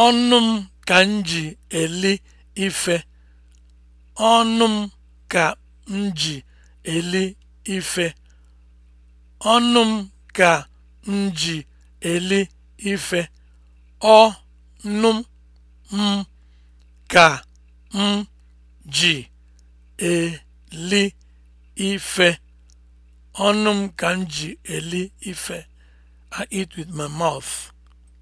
Ọnụ m ka m ji eli ife, ọnụ m ka m ji eli m ka m ji eli ife, m ka ka m ji eli ife. I eat with my mouth.